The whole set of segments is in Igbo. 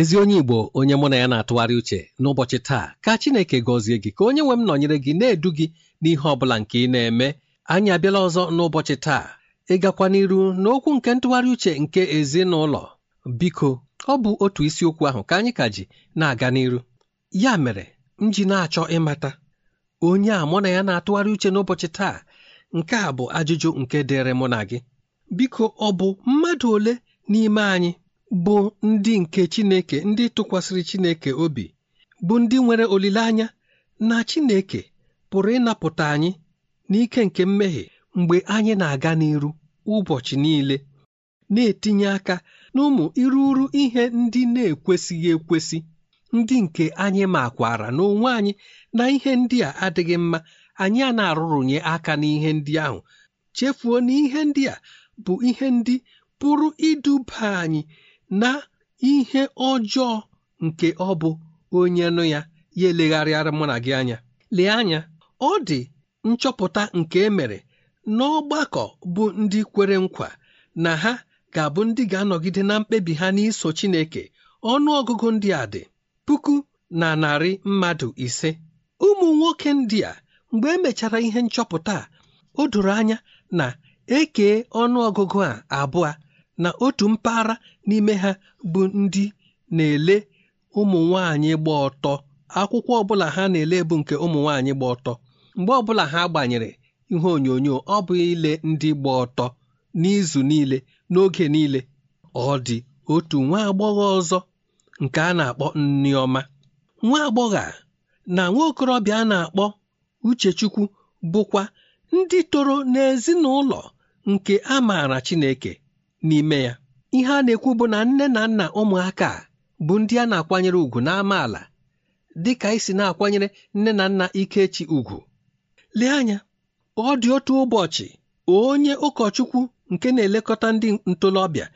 ezi onye igbo onye mụ na ya na-atụgharị uche n'ụbọchị taa ka chineke gọzie gị ka onye nwe m nọnyere gị na-edu gị n'ihe ọ bụla nke ị na-eme anyị abịala ọzọ n'ụbọchị taa ịgakwa n'iru n'okwu nke ntụgharị uche nke ezinụlọ biko ọ bụ otu isiokwu ahụ ka anyị ka ji na-aga n'iru ya mere m ji na-achọ ịmata onye a mụ na ya na-atụgharị uche n'ụbọchị taa nke a bụ ajụjụ nke dịrị mụ na gị biko ọ bụ mmadụ ole n'ime anyị bụ ndị nke Chineke ndị tụkwasịrị Chineke obi bụ ndị nwere olileanya na Chineke pụrụ ịnapụta anyị n'ike nke mmehie mgbe anyị na-aga n'iru ụbọchị niile na-etinye aka n'ụmụ iruru ihe ndị na-ekwesịghị ekwesị ndị nke anyị makwara n'onwe anyị na ihe ndị a adịghị mma anyị a na-arụrụnye aka n'ihe ndị ahụ chefuo na ihe ndị a bụ ihe ndị pụrụ iduba anyị na ihe ọjọọ nke ọ bụ onye nụ ya ya elegharịara mụ na gị anya lee anya ọ dị nchọpụta nke e mere n'ọgbakọ bụ ndị kwere nkwa na ha ga-abụ ndị ga-anọgide na mkpebi ha n'iso Chineke ọnụọgụgụ ndị a dị puku na narị mmadụ ise ụmụ nwoke ndị a mgbe emechara ihe nchọpụta a o doro anya na eke ọnụọgụgụ a abụọ na otu mpaghara n'ime ha bụ ndị na-ele ụmụ nwaanyị gba ọtọ akwụkwọ ọbụla ha na-ele bụ nke ụmụ nwaanyị gba ọtọ mgbe ọbụla ha gbanyere ihe onyonyo ọ bụ ile ndị gba ọtọ n'izu niile n'oge niile ọ dị otu nwa agbọghọ ọzọ nke a na-akpọ nneọma nwa agbọghọ a na nwa okorobịa a na-akpọ uchechukwu bụkwa ndị toro n'ezinụlọ nke a maara Chineke n'ime ya ihe a na-ekwu bụ na nne na nna ụmụaka a bụ ndị a na-akwanyere ugwu ala, dị ka isi si na-akwanyere nne na nna Ikechi ugwu lee anya ọ dị otu ụbọchị onye ụkọchukwu nke na-elekọta ndị ntolobịa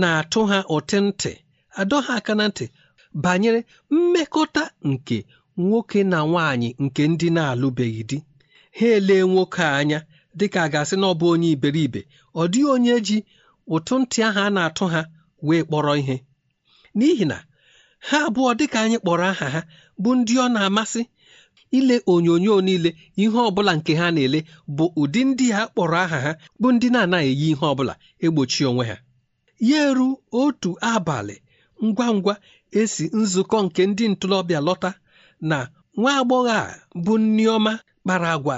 na-atụ ha ụtị ntị adọ ha aka na ntị banyere mmekọta nke nwoke na nwaanyị nke ndị na-alụbeghị di ha elee nwoke a anya dịka a ga-asị na ọ bụ onye iberibe ọ dịghị onye ji ụtụ ntị ahụ a na-atụ ha wee kpọrọ ihe n'ihi na ha abụọ dịka anyị kpọrọ aha ha bụ ndị ọ na-amasị ile onyonyo niile ihe ọbụla nke ha na-ele bụ ụdị ndị a kpọrọ aha ha bụ ndị na-anaghị eyi ihe ọbụla egbochi onwe ha ya eru otu abalị ngwa ngwa esi nzukọ nke ndị ntorobịa lọta na nwa agbọghọ a bụ nneọma kpara agwa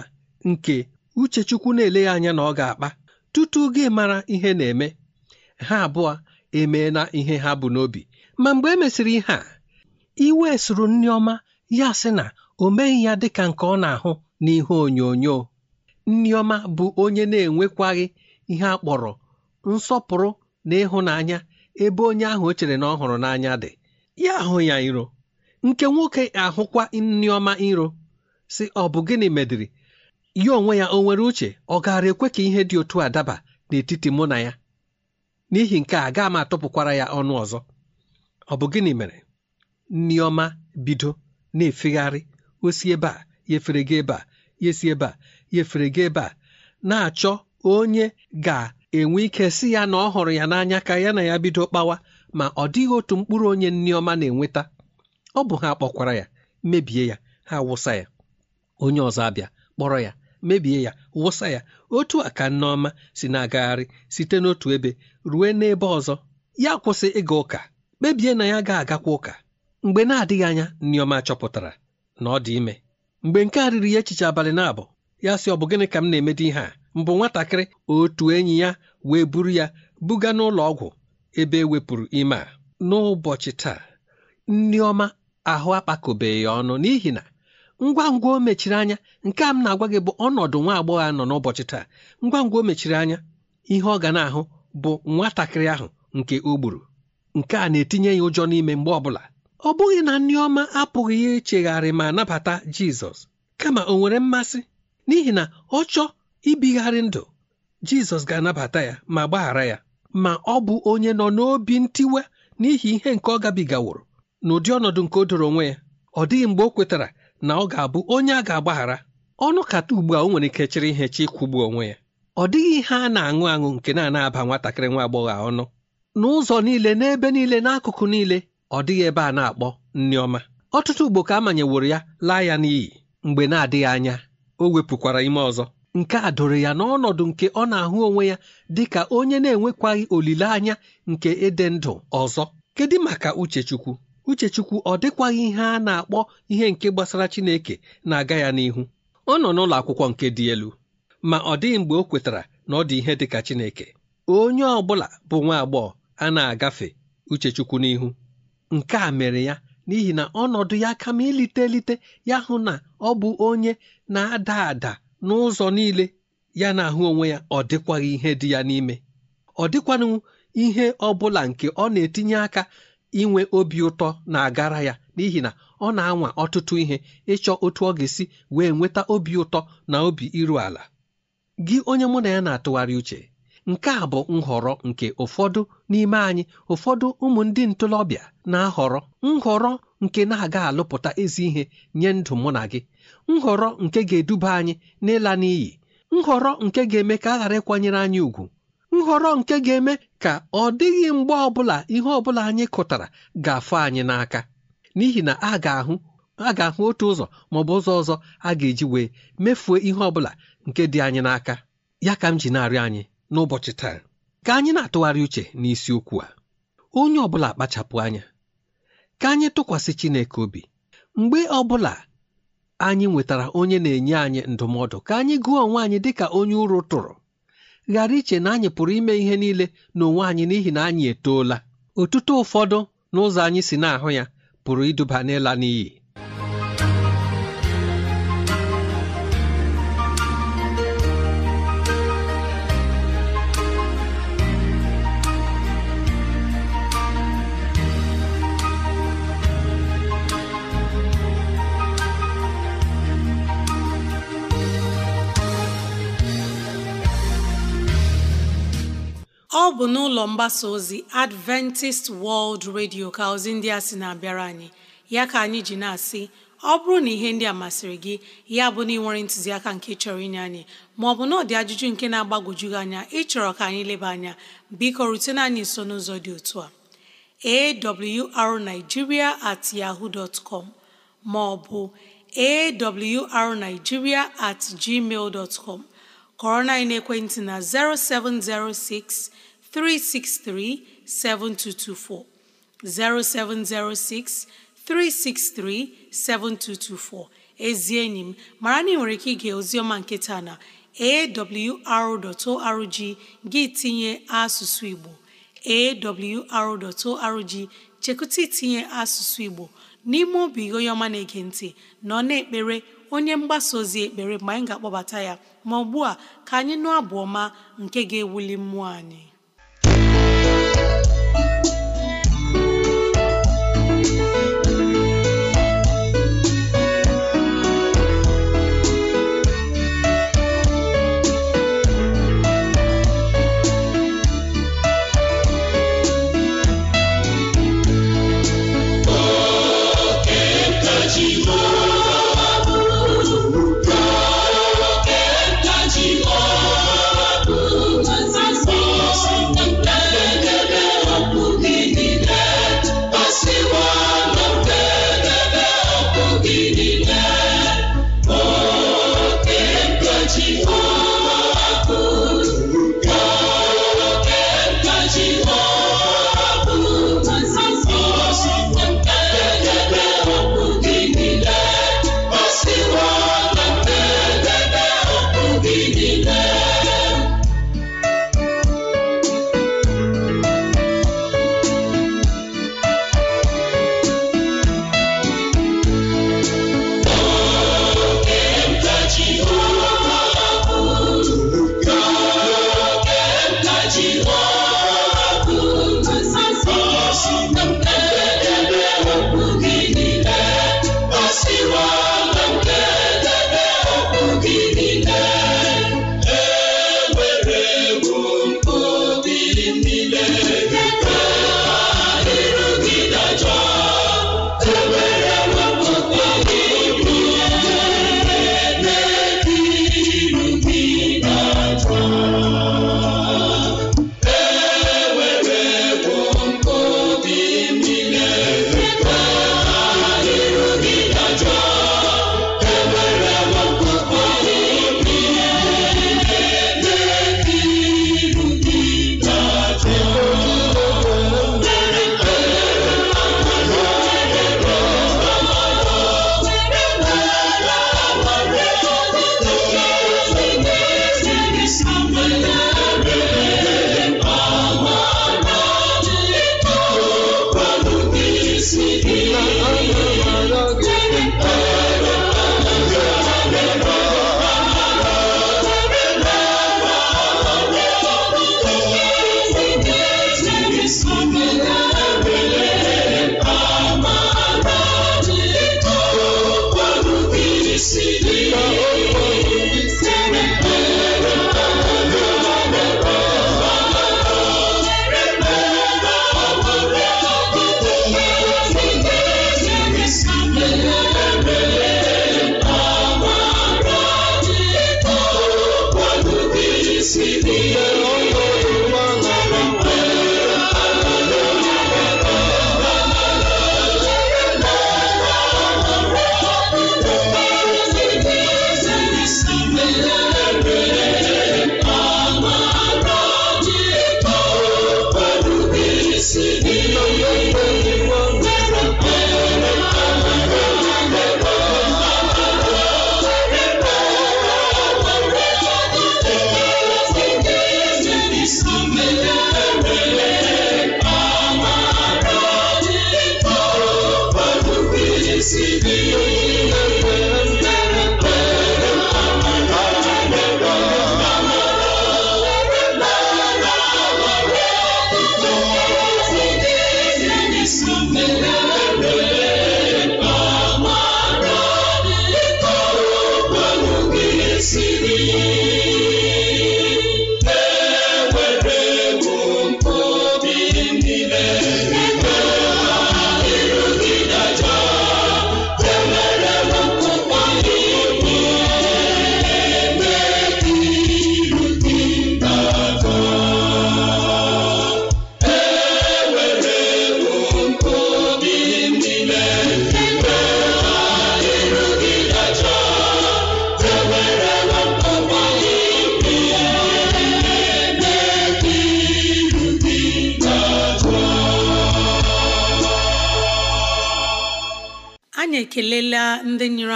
nke uchechukwu na-ele ya anya na ọ ga-akpa tutu gị mara ihe na-eme ha abụọ emeela ihe ha bụ n'obi ma mgbe e mesịrị ihe a iwe soro nneọma ya sị na o meghị ya dịka nke ọ na-ahụ n'ihe onyonyo nneọma bụ onye na-enwekwaghị ihe a kpọrọ nsọpụrụ na ịhụnanya ebe onye ahụ o chere na ọ hụrụ n'anya dị ya ahụ ya iro nke nwoke ahụkwa nneọma iro si ọ bụ gịnị mediri ya onwe ya o nwere uche ọ gaara ekwe ka ihe dị otu a daba n'etiti mụ na ya n'ihi nke a gaa m atụpụkwara ya ọnụ ọzọ ọ bụ gịnị mere nneọma bido na-efegharị osi ebe a yefere gị ebe a yesi ebe a yefere gị ebe a na-achọ onye ga-enwe ike si ya na ọ hụrụ ya n'anya ka ya na ya bido kpawa ma ọ dịghị otu mkpụrụ onye nneọma na-enweta ọ bụ ha kpọkwara ya mebie ya ha wụsa ya onye ọzọ abịa kpọrọ ya mebie ya wụsa ya otu a ka nneọma si na-agagharị site n'otu ebe ruo n'ebe ọzọ ya kwụsị ịga ụka kpebie na ya ga-agakwa ụka mgbe na-adịghị anya nneọma chọpụtara na ọ dị ime mgbe nke a riri ya echiche abalị na-abụ ya sị ọ bụ gịnị ka m na-emede ihe a mbụ nwatakịrị otu enyi ya wee buru ya buga n'ụlọ ọgwụ ebe e wepụrụ ime a n'ụbọchị taa nneọma ahụ akpakọbeghị ọnụ n'ihi na ngwa ngwa o mechiri anya nke a m na-agwa gị bụ ọnọdụ nwa agbọghọ a nọ n'ụbọchị taa ngwa ngwa o mechiri anya ihe ọ ga na-ahụ bụ nwatakịrị ahụ nke o gburu nke a na-etinye ya ụjọ n'ime mgbe ọbụla ọ bụghị na Nneoma ọma apụghị ichegharị ma nabata Jizọs kama o nwere mmasị n'ihi na ọ chọọ ibigharị ndụ Jizọs ga-anabata ya ma gbaghara ya ma ọ bụ onye nọ n'obi ntiwe n'ihi ihe nke ọ gabigaworo n'ụdị ọnọdụ nke o doro onwe ya ọ dịghị mgbe o kwetara na ọ ga-abụ onye a ga-agbaghara ọnụ kata ugbu a o nwere ike chịrị ihe chi ịkwụgbu onwe ya ọ dịghị ihe a na-aṅụ aṅụ nke na-anaba nwatakịrị nwa agbọghọ ọnụ n'ụzọ niile n'ebe niile n'akụkụ niile ọ dịghị ebe a na-akpọ nneọma ọtụtụ ugbo ka a manyeworo ya laa ya n'iyi mgbe na-adịghị anya o wepụkwara ime ọzọ nke a doro ya n'ọnọdụ nke ọ na-ahụ onwe ya dị ka onye na-enwekwaghị olileanya nke ịdị ndụ ọzọ kedu maka uchechukwu uchechukwu ọ dịkwaghị ihe a na-akpọ ihe nke gbasara chineke na-aga ya n'ihu ọ nọ n'ụlọ akwụkwọ nke dị elu ma ọ dịghị mgbe o kwetara na ọ dị ihe dị ka chineke onye ọ bụla bụ nwa agbọghọ a na-agafe uchechukwu n'ihu nke a mere ya n'ihi na ọnọdụ ya kama ilite elite ya hụ na ọ bụ onye na-ada ada n'ụzọ niile ya na-ahụ onwe ya ọ dịkwaghị ihe dị ya n'ime ọ dịkwanụ ihe ọ bụla nke ọ na-etinye aka inwe obi ụtọ na-agara ya n'ihi na ọ na-anwa ọtụtụ ihe ịchọ otu ọ ga-esi wee nweta obi ụtọ na obi iru ala gị onye mụ na ya na-atụgharị uche nke a bụ nhọrọ nke ụfọdụ n'ime anyị ụfọdụ ụmụ ndị ntorobịa na-ahọrọ nhọrọ nke na-aga alụpụta ezi ihe nye ndụ mụ na gị nhọrọ nke ga-eduba anyị n'ịla n'iyi nhọrọ nke ga-eme ka a ghara ịkwanyere anyị ùgwù nhọrọ nke ga-eme ka ọ dịghị mgbe ọbụla ihe ọbụla anyị kụtara ga-afụ anyị n'aka n'ihi na a ga-ahụ otu ụzọ maọbụ ụzọ ọzọ a ga-eji wee mefuo ihe ọbụla nke dị anyị n'aka ya ka m ji narị anyị n'ụbọchị taa ka anyị na-atụgharị uche n'isiokwu a onye ọbụla kpachapụ anya ka anyị tụkwasị Chineke obi mgbe ọbụla anyị nwetara onye na-enye anyị ndụmọdụ ka anyị gụọ onwe anyị dịka onye ụrụ tụrụ ghara iche na anyị pụrụ ime ihe niile n'onwe anyị n'ihi na anyị etoola otuto ụfọdụ n'ụzọ anyị si na-ahụ ya pụrụ iduba n'ịla n'iyi bụ n'ụlọ mgbasa ozi Adventist World Radio ka ozi ndị a sị na-abịara anyị ya ka anyị ji na-asị ọ bụrụ na ihe ndị a masịrị gị ya bụ na ịnwere ntụziaka nke chọrọ inye anyị maọbụ na ọ ajụjụ nke na-agbagwoju gị anya ịchọrọ ka anyị leba anya biko rutena anyị nso n'ụzọ dị otu a arigiria at yahoo dot com maọbụ arigiria at gmail dot com kọrọ na ekwentị na 0706 363 7224. 0706 363 7224. Ezi enyi m mara na ị nwere ike ige oziọma nke taa na awr.org gị tinye asụsụ Igbo awr.org chekụta itinye asụsụ Igbo n'ime obi onye ọma na-ege ntị nọ na-ekpere onye mgbasa ozi ekpere mgbe anyị ga-akpọbata ya ma ugbu a ka anyị nụ abụ ọma nke ga-ewuli mmụọ anyị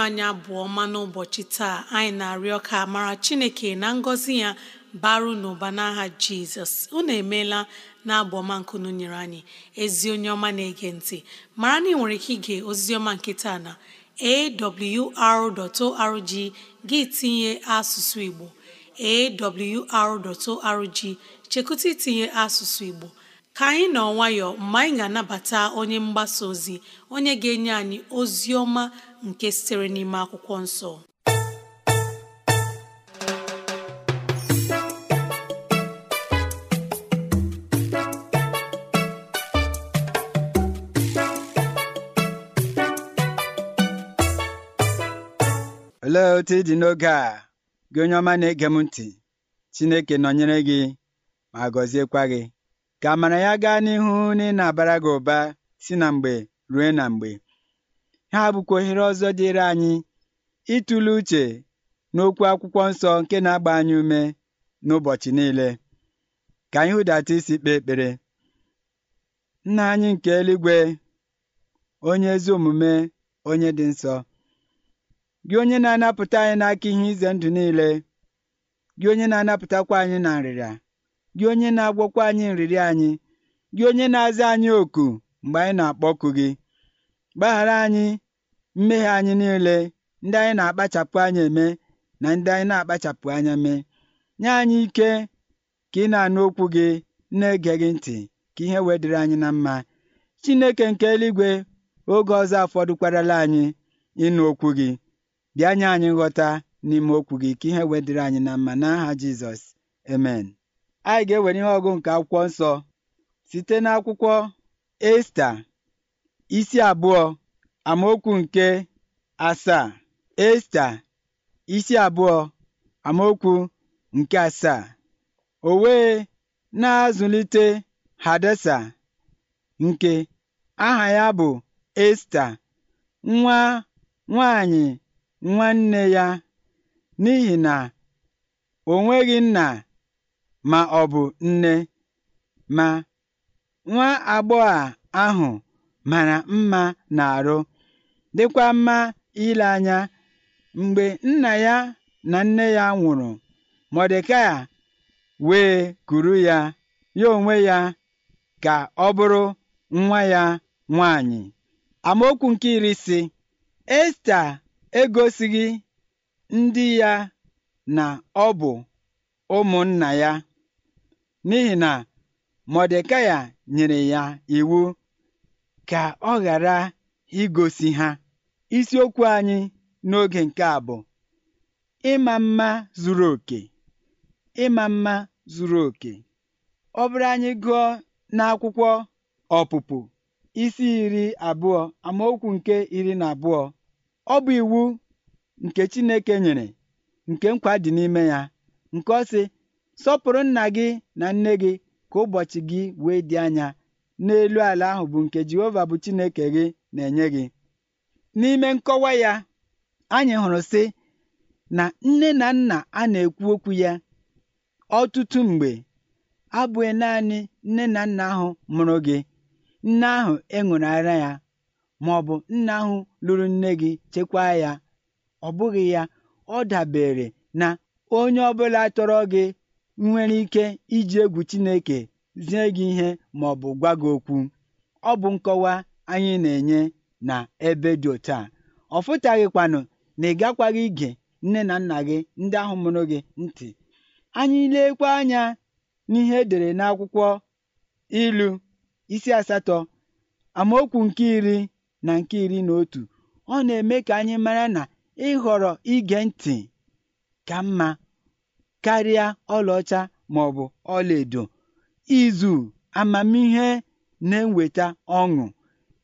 anyị abụọ n'ụbọchị taa anyị na-arịọ ka mara Chineke na ngọzi ya baru n'ụba n'aha Jizọs unu emeela na abụ ọma nkunu nyere anyị ezi onye ọma na-ege ntị mara na ị nwere ike ige ozi ọma nke taa na awr.org gị tinye asụsụ Igbo awr.org chekụta itinye asụsụ Igbo ka anyị nọ nwayọọ mgbe anyị ga-anabata onye mgbasa ozi onye ga-enye anyị ozi ọma nke sitere n'ime akwụkwọ nsọ olee otu ị dị n'oge a gị onye ọma na-ege m ntị Chineke nọnyere gị ma gọziekwa gị ka amara ya gaa n'ihu na ị na-abara gị ụba si na mgbe ruo na mgbe ha bụkwa ohere ọzọ dịịrị anyị ịtụle uche n'okwu akwụkwọ nsọ nke na-agba anyị ume n'ụbọchị niile ka anyị hụdata isi kpee ekpere nna anyị nke eluigwe onye ezi omume onye dị nsọ gị onye na-anapụta anyị n'aka ihe ize ndụ niile gị onye na-anapụtakwa anyị na nrịrịa gị onye na-agwọkwa anyị nrịrịa anyị gị onye na-aza anyị oku mgbe anyị na-akpọku gị gbaghara anyị mmehie anyị niile ndị anyị na-akpachapụ anya eme na ndị anyị na-akpachapụ anya mee nye anyị ike ka ị na-anụ okwu gị na-ege gị ntị ka ihe wee anyị na mma Chineke nke eluigwe oge ọzọ afọdụkwarala anyị ịnụ okwu gị bịa nye anyị nghọta n'ime okwu gị ka ihe wee anyị na mma n'aha Jizọs amen anyị ga-ewere ihe ọgụ nke akwụkwọ nsọ site n'akwụkwọ Esta isi abụọ amaokwu nke asaa esta isi abụọ amaokwu nke asaa o wee na-azụlite hadesa nke aha ya bụ esta nwa nwanyị nwanne ya n'ihi na o nweghị nna ma ọ bụ nne ma nwa agbọghọ ahụ mara mma na-arụ dịkwa mma ile anya mgbe nna ya na nne ya nwụrụ mọdekai wee kuru ya ya onwe ya ka ọ bụrụ nwa ya nwanyị amaokwu nke iri si esta egosighị ndị ya na ọ bụ ụmụnna ya n'ihi na mọdekai nyere ya iwu ka ọ ghara igosi ha Isiokwu anyị n'oge nke a bụ ịma mma zuru oke ịma mma zuru oke ọ bụrụ anyị gụọ n'akwụkwọ ọpụpụ isi iri abụọ amaokwu nke iri na abụọ ọ bụ iwu nke Chineke nyere nke nkwa dị n'ime ya nke ọ sọpụrụ nna gị na nne gị ka ụbọchị gị wee dị anya n'elu ala ahụ bụ nke Jehova bụ Chineke gị na-enye gị N'ime nkọwa ya, anyị hụrụ sị na nne na nna a na-ekwu okwu ya ọtụtụ mgbe abụghị naanị nne na nna ahụ mụrụ gị, nne ahụ e ara ya, ma ọ bụ nna ahụ lụrụ nne gị chekwaa ya. Ọ bụghị ya, ọ dabere na onye ọbụla tọrọ gị nwere ike iji egwu Chineke zie gị ihe ma ọ bụ gwa gị okwu. Ọ bụ nkọwa anyị na-enye na ebe dị òtu à ọ̀fụtàghị̀kwànụ̀ na ị gakwaghị ige nne na nna gị ndị ahụ mụrụ gị ntị. anyị lekwa anya n'ihe edere n'akwụkwọ ilu isi asatọ: amaokwu nke iri na nke iri na otu. ọ na-eme ka anyị mara na ịhọrọ ige ntị ka mma karịa ọlaọcha maọbụ ọlaedo. izu amamihe na-eweta ọṅụ.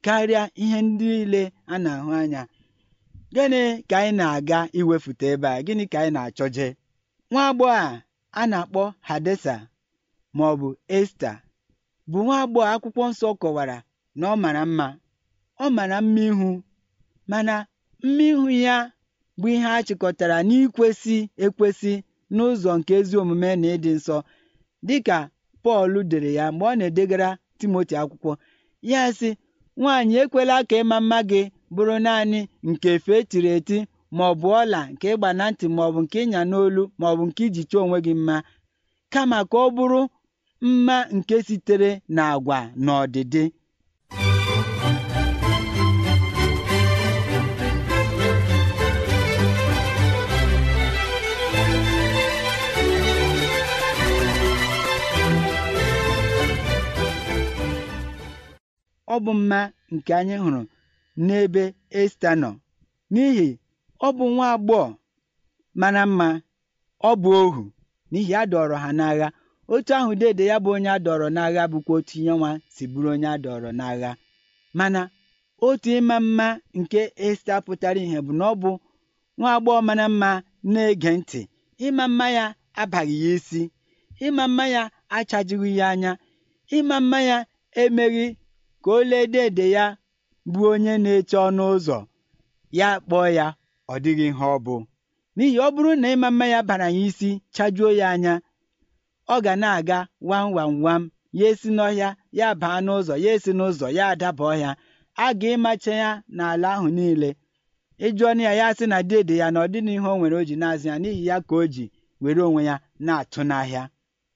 karịa ihe ndị niile a na-ahụ anya gịnị ka anyị na-aga iwefute ebe a gịnị ka anyị na-achọje nwa agbọghọ a a na-akpọ hadesa ma ọ bụ esta bụ nwa agbọghọ akwụkwọ nsọ kọwara na ọ mara mma ọ mara mma ihu mana mma ihu ya bụ ihe a chịkọtara n'ikwesị ekwesị n'ụzọ nke ezi omume na ịdị nsọ dịka Pọl dere ya mgbe ọ na-edegara Timoti akwụkwọ ya sị Nwaanyị ekwela ka ịma mma gị bụrụ naanị nke efe e tiri eti ma ọ bụ ọla nke ịgba na ntị bụ nke ịnya n'olu maọbụ nke iji chọọ onwe gị mma kama ka ọ bụrụ mma nke sitere na na ọdịdị ọ bụ mma nke anyị hụrụ n'ebe esta nọ n'ihi ọ bụ nwa agbọghọ mara mma ọ bụ ohu n'ihi a dọrọ ha n'agha otu ahụ dede ya bụ onye adọrọ n'agha bụkwa otu ihe nwa si bụrụ onye adọrọ n'agha mana otu ịma mma nke esta pụtara ihe bụ na ọ bụ nwa agbọghọ mara mma na-ege ntị ịma mma ya abaghị ya isi ịma mma ya achajighị ya anya ịma mma ya emeghị ka o ledee ede ya bụ onye na-eche ọnụ ụzọ ya kpọọ ya ọ dịghị ihe ọ bụ n'ihi ọ bụrụ na ịma mma ya bara ya isi chajuo ya anya ọ ga na-aga wam wam wam ya esi n'ọhịa ya baa n'ụzọ ya esi n'ụzọ ya adaba ọhịa a ga ịmacha ya n'ala ahụ niile ịjụọ na ya ya sị na dede ya na ọ dịna ihe o nwere o ji na-azụ ya n'ihi ya ka o ji were onwe ya na-atụ n'ahịa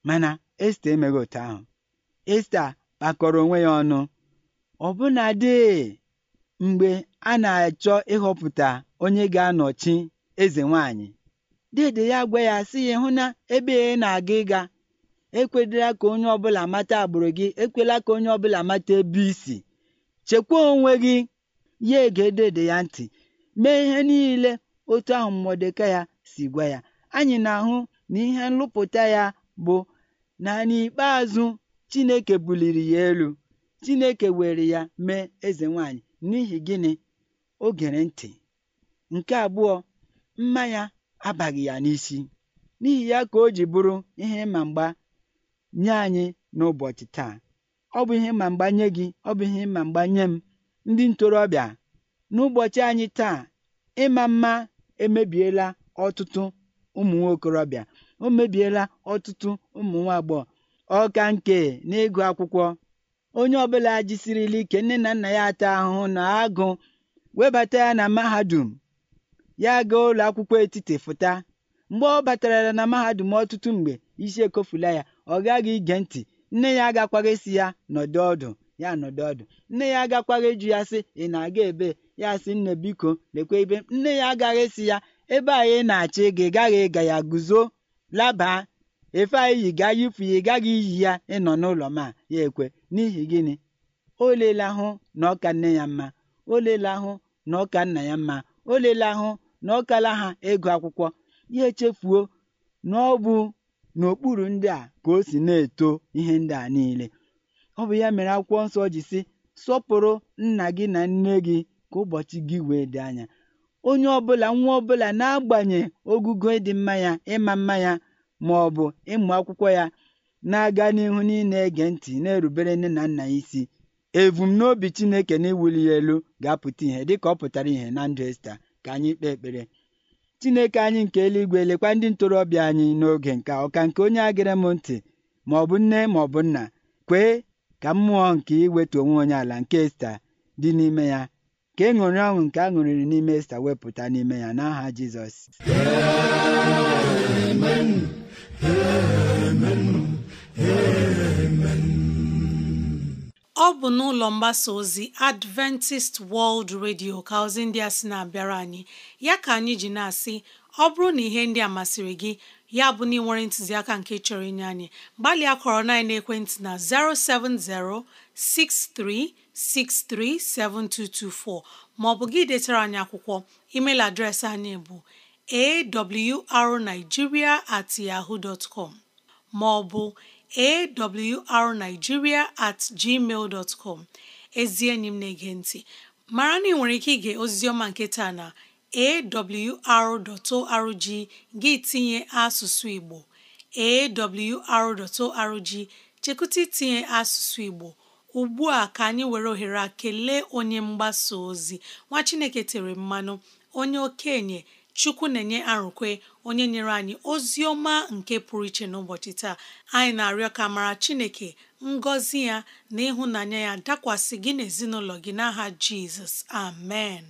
mana esta emeghị otu ahụ esta kpakọrọ onwe ya ọnụ ọbụnadị mgbe a na-achọ ịhọpụta onye ga-anọchi eze nwanyị dede ya gwa ya sị ya hụ na ebe ị na-aga ịga ekwedela ka onye ọ bụla mata agbụrụ gị ekwela ka onye ọbụla mata ebe isi chekwa onwe gị ya ege dede ya ntị mee ihe niile otu ahụ mmọdeka ya si gwa ya anyị na-ahụ na ihe nlụpụta ya bụ na n'ikpeazụ Chineke buliri ya elu Chineke were ya mee eze nwanyị n'ihi gịnị o gere ntị nke abụọ mmanya abaghị ya n'isi n'ihi ya ka o ji bụrụ ihe ịma mgba nye anyị n'ụbọchị taa ọ bụ ihe ma mgba nye gị ọ bụ ihe ma mgba nye m ndị ntorobịa n'ụbọchị anyị taa ịma mma emebiela ọtụtụ ụmụ nwokorobịa o mebiela ọtụtụ ụmụ nwa agbọghọ ọka nke n'ịgụ akwụkwọ onye ọbụla jisirila ike nne na nna ya ata ahụhụ na agụ webata ya na mahadum ya gaa ụlọ akwụkwọ etiti fụta mgbe ọ batara na mahadum ọtụtụ mgbe isi ekofula ya ọ gaghị ige ntị nne ya agakwaghị si ya nọdụ ọdụ ya nọdụ ọdụ nne ya agakwaghị ịjụ ya sị ị na-aga ebe ya sị nne biko lekwe ibe nne ya agaghị si ya ebe a ị na achị gị ị gaghị ịga ya guzo labaa efe anyị yi gaa yipụ ya ị gaghị iyi ya ịnọ n'ụlọ ma ya ekwe n'ihi gịnị o leela ahụ na ọka nne ya mma o leela ahụ na ọka nna ya mma o leela ahụ na ọkala ha ịgụ akwụkwọ ya echefuo na ọ bụ n'okpuru ndị a ka o si na-eto ihe ndị a niile ọ bụ ya mere akwụkwọ nsọ ji sị sọpụrụ nna gị na nne gị ka ụbọchị gị wee dị anya onye ọbụla nwa ọbụla na-agbanye ogugo ịdị mma ya ịma mma ya bụ ịmụ akwụkwọ ya na-aga n'ihu n'ịna-ege ntị na-erubere nne na nna ya isi ebumnobi Chineke na iwuli ya elu ga-apụta ihe dịka ọ pụtara ihe na ndụ Esta ka anyị kpee ekpere Chineke anyị nke eluigwe lekwa ndị ntorobịa anyị n'oge nke ọka nke onye agịrị m ntị ma ọ bụ nne ma ọ bụ nna kwee ka mmụọ nke iwetu onwe onye ala nke Esta dị n'ime ya ka ịṅụrị ọṅụ nke a ṅụrịrị n'ime Esta wepụta n'ime ya n'aha Jizọs ọ bụ n'ụlọ mgbasa ozi Adventist World Radio ka ozi ndị a sị na-abịara anyị ya ka anyị ji na-asị ọ bụrụ na ihe ndị a masịrị gị ya bụ na ị nwere ntụziaka nke chọrọ inye anyị gbalịa kọrọ na ekwentị na 070 6363 7224 ma ọ bụ gị detara anyị akwụkwọ emeil adreesị anyị bụ awrnigeria at yahoo dot com ma ọ bụ at gmail dot com ezi enyi m na-ege ntị mara na ị nwere ike ige oziziọma nke taa na awr.org gị tinye asụsụ Igbo awr.org chekụta itinye asụsụ Igbo ugbu a ka anyị were ohere a kelee onye mgbasa ozi nwa Chineke tere mmanụ onye okenye chukwu na-enye arụkwe onye nyere anyị ozi ọma nke pụrụ iche n'ụbọchị taa anyị na-arịọ ka mara chineke ngọzi ya na ịhụnanya ya dakwasị gị n'ezinụlọ gị n'aha jizọs amen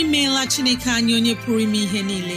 imeela chineke anyị onye pụrụ ime ihe niile